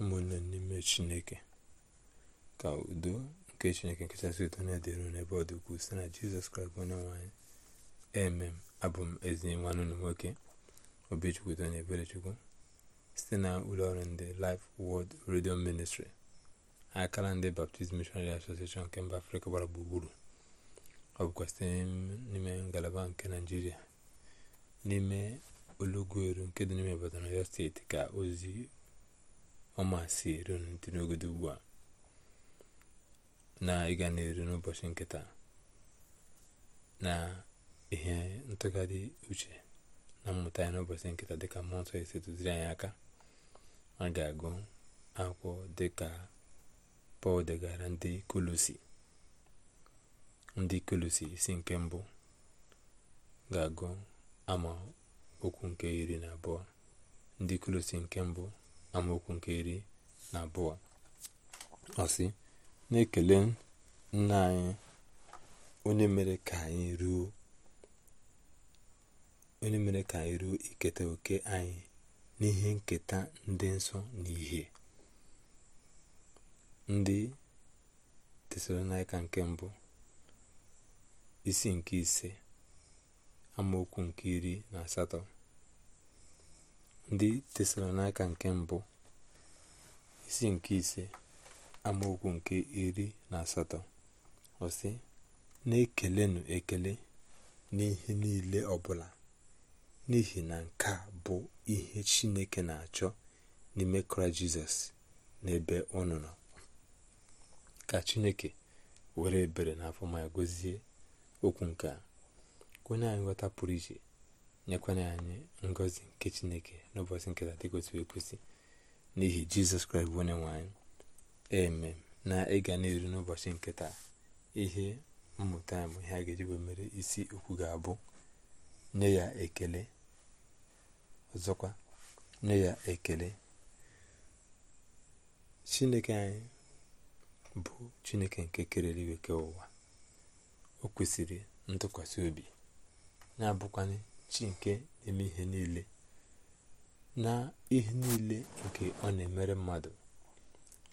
ụmụnne n'ime chineke ka udo nke chineke nkachasị ụtọ na-edere n'ebe ọ dị si site na jizọs kraịst onye nwanyị emem abụ m ezi nwanne na nwoke obechukwu udo na site na ụlọọrụ ndị lif Word Radio Ministry akara ndị Baptist Missionary Association nke mba afrịka gbara gburugburu ọ bụkwa site n'ime ngalaba nke naijiria n'ime olugweru nke dị n'ime Ibadan Ọyọ steeti ka ozi ọma si eru dị n'ogodo ugbu a na ịga na-eru n'ụbọchị nkịta na ihe ntụgharị uche na mmụta ya n'ụbọchị nkịta dịka mmụọ nsọ esi duziri anyị aka a ga-agụ akwụkwọ dịka pọl degara ndị kolosi ndị kolosi isi nke mbụ ga-agụ ama okwu nke iri na abụọ ndị kolosi nke mbụ amaokwu nke iri na abụọ ọsị na-ekele nna anyị onye mere ka anyị ruo onye mere ka anyị ruo iketa oke anyị n'ihe nketa ndị nsọ na ihe ndị tesalonaika nke mbụ isi nke ise amaokwu nke iri na asatọ ndị tesalonaika nke mbụ isi nke ise amaokwu nke iri na asatọ ọsị na-ekelenụ ekele n'ihe niile ọbụla n'ihi na nke a bụ ihe chineke na-achọ n'ime kraịst jizọs n'ebe ebe nọ ka chineke were ebere na afọ ma gozie okwu nke a onye anyị nweta pụrụ iche nyekwana anyị ngozi nke chineke n'ụbọchị nke dị ekwesịrị ekwesị n'ihi jizọs kraịst bụ onye nwanyị eme na ịga n'elu n'ụbọchị nke taa ihe mmụta bụ ihe a ga-eji mere isi okwu ga-abụ nye ya ekele ọzọkwa nye ya ekele chineke anyị bụ chineke nke kerere iweke ụwa o ntụkwasị obi na-abụkwanye chi nke na-eme ihe niile na ihe niile nke ọ na-emere mmadụ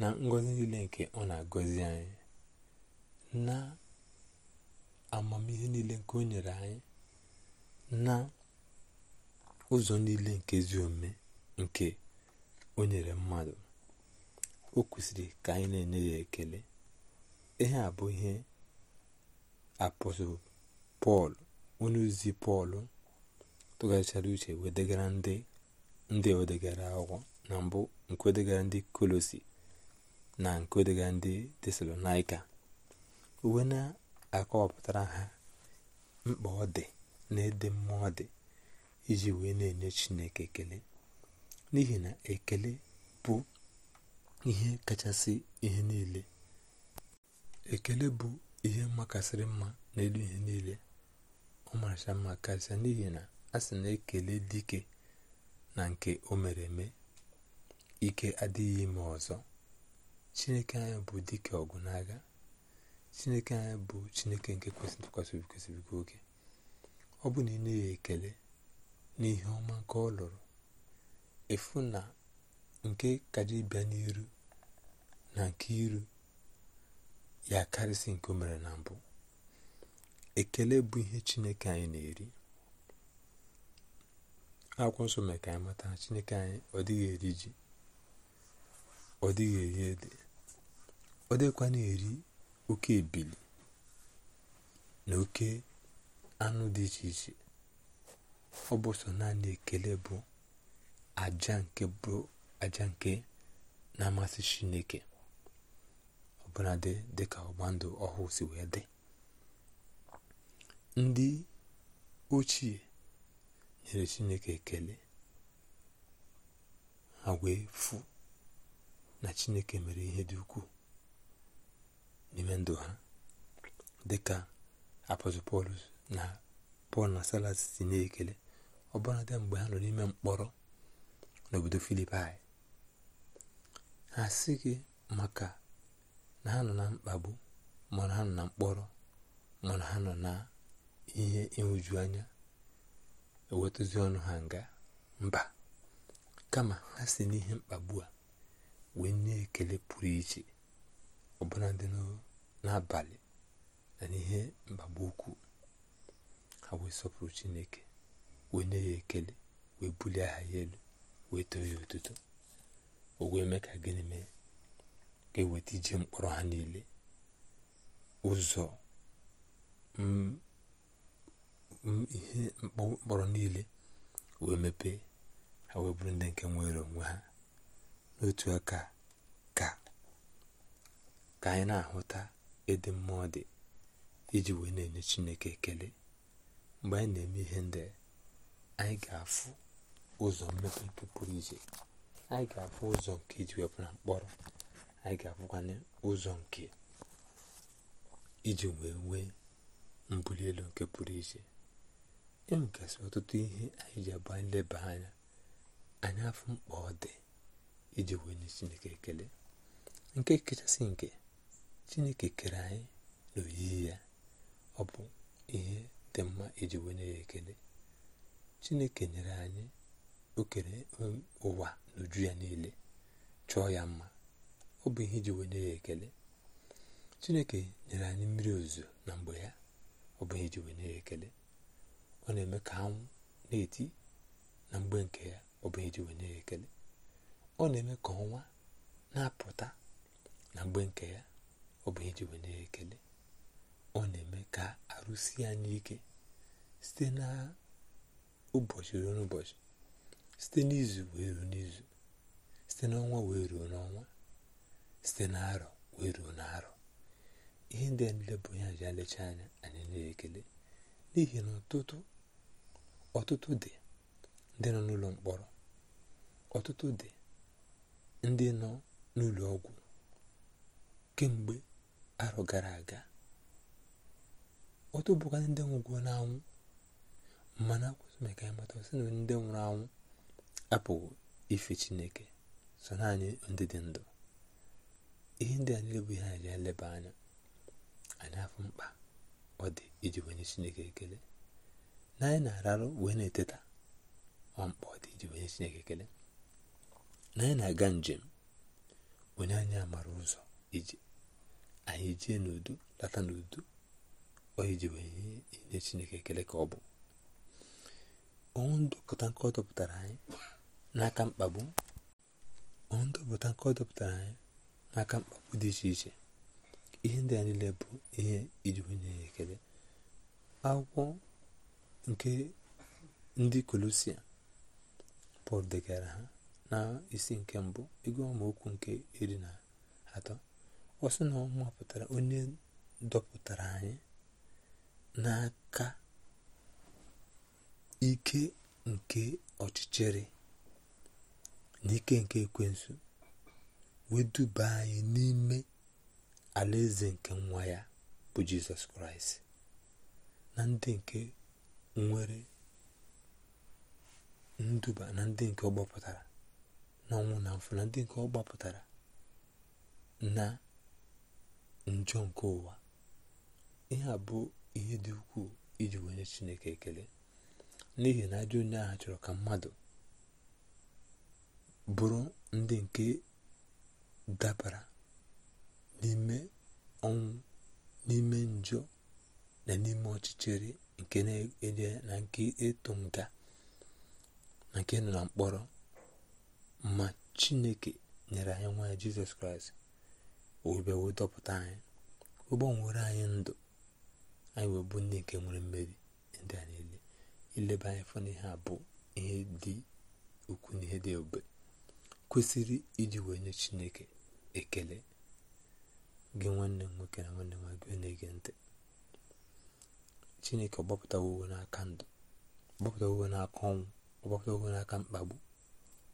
na ngọzi niile nke ọ na-agọzi anyị na amamihe niile nke o nyere anyị na ụzọ niile nke ezi omume nke o nyere mmadụ o kwesịrị ka anyị na-enye ya ekele ihe a bụ ihe apọstụl pọl onye ozi pọl tụgharịchara uche wedegara ndị ndị wedegara akwụkwọ na mbụ nke ndị kolosi na nke wedegara ndị tesalonaika uwe na-akọwapụtara ha mkpa ọ dị na ede mmụọ dị iji wee na-enye chineke ekele n'ihi na ekele bụ ihe kachasị ihe niile ekele bụ ihe makasịrị mma n'elu ihe niile ọ maracha mma karịsịa n'ihi na a sị na-ekele dike na nke o mere eme ike adịghị ime ọzọ chineke anyị bụ dike ọgụ n'agha chineke anyị bụ chineke nke kwesịrị kwesịrị gị oge ọ bụ na ị na-enye ekele ihe ọma nke ọ lụrụ efu na nke kaja bịa n'iru na nke iru ya karịsị nke o mere na mbụ ekele bụ ihe chineke anyị na-eri akwụkwọ nsọ mee ka anyị mata chineke anyị ọ dịghị eri ji ọ dịghị eri ede ọ dịkwa na eri oke ebili na oke anụ dị iche iche ọ bụ sọ naanị ekele bụ aja nke bụ aja nke na-amasị chineke dị dịka ọgba ndụ ọhụụ si wee dị ndị ochie nyere chineke ekele ha wee na chineke mere ihe dị ukwuu n'ime ndụ ha dịka ka pọl na pọl na salas si na-ekele ọ bụrụ ndị mgbe ha nọ n'ime mkpọrọ n'obodo filipai ha si gị maka na ha nọ na mkpagbu mana ha nọ na mkpọrọ mana ha nọ na ihe ịhụju anya ewetụzi ọnụ ha nga mba kama ha si n'ihe mkpagbu a wee nye ekele pụrụ iche ọbụla dị n'abalị na n'ihe mkpagbu ukwu ha wee sọpụrụ chineke wee nye ya ekele wee bulie aha ya elu wee too ya ụtụtụ o wee mee ka gịnị mee ga-eweta ije mkpọrọ ha niile ụzọ ihe mkpọrọ niile wee mepee ha wee bụrụ ndị nke nwere onwe ha n'otu aka ka ka anyị na-ahụta ịdị mmụọ dị iji wee na-enye Chineke ekele mgbe anyị na-eme ihe ndị anyị ga-afụ ụzọ mmepe nke pụrụ iche anyị ga-afụ ụzọ nke iji wepụ na mkpọrọ anyị ga-afụkwanye ụzọ nke iji wee nwee mbuli elu nke pụrụ iche e nwegasị ọtụtụ ihe anyị ji agba nleba anya anyị afọ mkpa ọ dị iji wee nye chineke ekele nke kachasị nke chineke kere anyị na oyiyi ya ọ bụ ihe dị mma iji wee nye ya ekele chineke nyere anyị okere ụwa n'uju ya niile chọọ ya mma ọ bụ ihe iji wee nye ya ekele chineke nyere anyị mmiri ozuzo na mgbe ya ọ bụ ihe iji wee nye ya ekele ọ na-eme ka ha na-eti na mgbe nke ya ọ bụ eji wenye ya ekele ọ na-eme ka ọnwa na-apụta na mgbe nke ya ọ bụ eji wenye ya ekele ọ na-eme ka arụsi anyị ike site na ụbọchị ruo n'ụbọchị site n'izu wee ruo n'izu site n'ọnwa wee ruo n'ọnwa site n'arọ wee ruo n'arọ ihe ndị a niile bụ ihe ji alecha anya anyị na-ekele n'ihi na ọtụtụ dị ndị nọ n'ụlọ mkpọrọ ọtụtụ dị ndị nọ n'ụlọ ọgwụ kemgbe arọ gara aga ọtụ bụkwa ndị nwụgwo n'anwụ mana akwụsị maka ịmata sị na ndị nwụrụ anwụ apụghị ife chineke so naanị ndị dị ndụ ihe ndị a niile bụ ihe anyị ga eleba anya anyị afọ mkpa ọ dị iji wenye chineke ekele na anyị na-ararụ wee na-eteta ọmkpa ọ dị iji wenye chineke ekele na anyị na-aga njem onye anyị amara ụzọ ije anyị jee n'udo lata n'udo ọ iji wee nye chineke ekele ka ọ bụ ọnwụ ndọpụta nke ọ dọpụtara anyị n'aka mkpagbu ọnwụ ndọpụta nke ọ dọpụtara anyị n'aka mkpagbu dị iche iche ihe ndị a niile bụ ihe iji onye ya ekele akwụkwọ nke ndị kolosia pọl degara ha na isi nke mbụ ego amaokwu nke iri na atọ ọsị na ọ onye dọpụtara anyị n'aka ike nke ọchịchịrị na ike nke ekwensu duba anyị n'ime ala eze nke nwa ya bụ jizọs kraịst na ndị nke nwere nduba na ndị nke ọ gbapụtara n'ọnwụ na mfụ na ndị nke ọ gbapụtara na njọ nke ụwa ihe a bụ ihe dị ukwuu iji wenye chineke ekele n'ihi na ajọ onye agha chọrọ ka mmadụ bụrụ ndị nke dabara n'ime ọnwụ n'ime njọ na n'ime ọchịchịrị nke na ede na nke ịtụ nga na nke nọ na mkpọrọ ma chineke nyere anyị nwa ya jizọs kraịst owebe wee dọpụta anyị ụgbọnwere anyị ndụ anyị wee bụ ndị nke nwere mmeri ndị a niile ileba anyị fọ n'ihe a bụ ihe dị ukwu na ihe dị ebube kwesịrị iji wee nye chineke ekele gị nwanne m nwoke na nwanne nwa gị na-ege ntị chineke ọgbapụtawo uwe n'aka ndụ ọgbapụtawo uwe n'aka ọnwụ ọgbapụtawo n'aka mkpagbu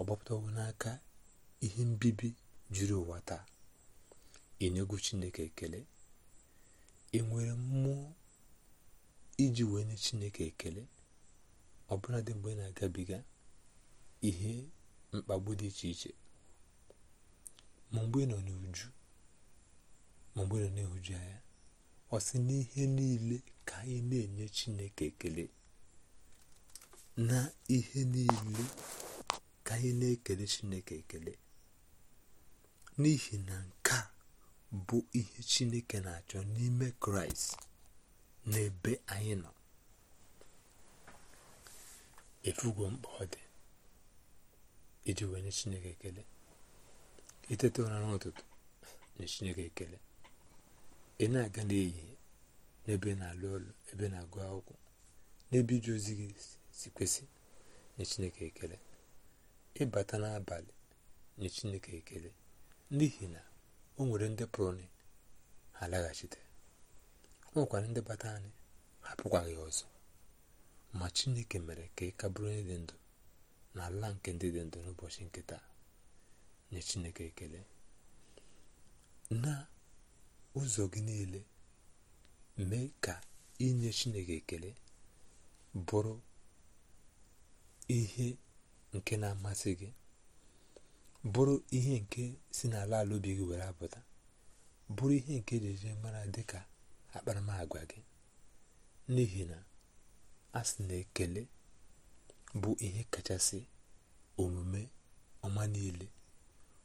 ọgbapụtawo n'aka ihe mbibi juru ụwa taa ị na-egwu chineke ekele ị nwere mmụọ iji wee nye chineke ekele ọbụla dị mgbe ị na-agabiga ihe mkpagbu dị iche iche ma mgbe ị nọ n'uju ma mgbere na-ehuju anya ọ sị n'ihe niile ka anyị na-enye chineke ekele na ihe niile ka anyị na-ekele chineke ekele n'ihi na nke a bụ ihe chineke na-achọ n'ime kraịst n'ebe anyị nọ efugo mkpa ọ dị iji wee nye chineke ekele itete ụra n'ụtụtụ nye chineke ekele ị na-aga n'ehihie n'ebe na-alụ ọlụ ebe na-agụ akwụkwọ n'ebe iji ozi gị si kwesị nye chineke ekele ịbata e n'abalị nye chineke ekele n'ihi na o nwere ndị pụrụ ha laghachite o nwekwara ndị bata anyị hapụkwaghị ọzọ ma chineke mere ka ị ka dị ndụ na ala nke ndị dị ndụ n'ụbọchị nke nye chineke ekele na ụzọ gị niile mee ka inye chineke ekele bụrụ ihe nke na-amasị gị bụrụ ihe nke si n'ala ala obi gị were apụta bụrụ ihe nke ejeje mara ka akparamagwa gị n'ihi na a sị na ekele bụ ihe kachasị omume ọma niile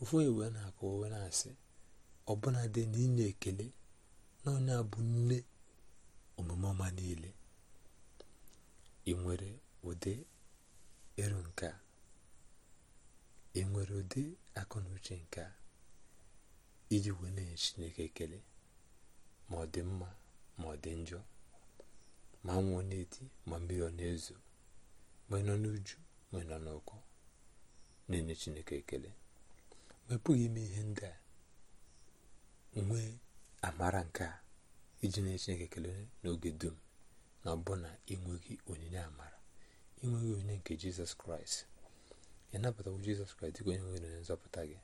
ụfọdụ wee na-akụ wee na-asị ọbụla dị n'inye ekele na onye bụ nne omume ọma niile ị nwere ụdị eru nke a ị nwere ụdị akụ na uche nke a iji wee na-enye Chineke ekele ma ọ dị mma ma ọ dị njọ ma nwụọ na-eti ma mmiri ọ na-ezo ma nọ n'uju ma nọ n'ụkọ na-enye Chineke ekele ma ihe ndị a nwee amara nke a iji n'echineke kelee ekele n'oge dum na ọbụna ịnweghị onyinye amara ịnweghị onyinye nke jizọs kraịst ị nabatawo jizọs kraịst dịka onye nwere onye nzọpụta gị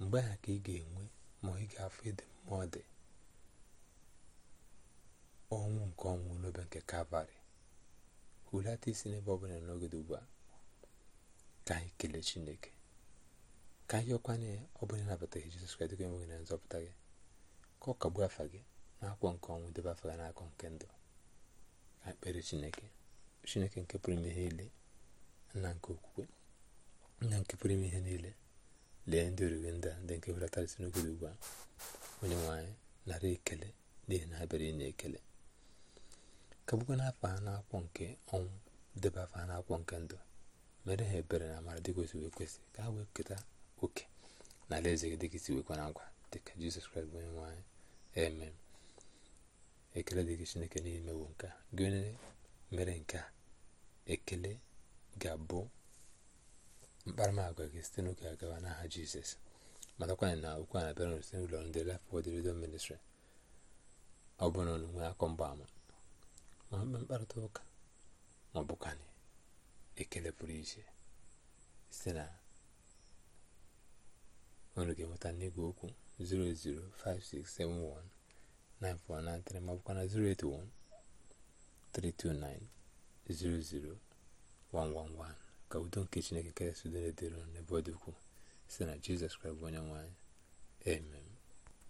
mgbe aha ka ị ga-enwe ma ị ga-afụ ịdị mma ọ dị ọnwụ nke ọnwụ n'obe nke kalvarị hulata isi n'ebe ọ bụla n'oge dị ugbu a ka anyị kelee chineke ka anyị ọkwa ya ọ na nabataghị Jizọs Kraịst gị enweghị na nzọpụta gị ka ọ kagbuo afa gị n'akwụkwọ nke ọnwụ debe afa gị nke ndụ ka kpere Chineke Chineke nke pụrụ ime ihe niile nna nke okwukwe nna nke pụrụ ime ihe niile lee ndị oriri ndị ndị nke hụlatarịsị n'ogodo ugbu a onye nwaanyị nara ekele n'ihi na ha bịara ekele kagbukwa n'afọ ha n'akwụkwọ nke ọnwụ debe afa ha n'akwụkwọ nke ndụ mere ha ebere na amara dị kwesịrị ka ha wee keta oke na eze gị dịka isi na agwa dịka jizọs kraịst bụ onye nwe ekele dịka chineke n'ime bụ nke gị onye mere nke a ekele ga-abụ mkparamagwa gị site n'oge agawa n'aha jizọs matakwanyị na okwu a na-abịara site n'ụlọ ndị Life Word Radio Ministry ọ bụ na akọ mgbaama ma mkpe mkparịta ụka ma ọ bụkwanị ekele pụrụ iche site na ọnụ ga-enweta n'igwe okwu 0056719493 ma na 08132900111 ka udo nke Chineke karịsị udo na-edere n'ebe ọ dị ukwuu site na Jizọs Kraịst bụ onye nwanyị amen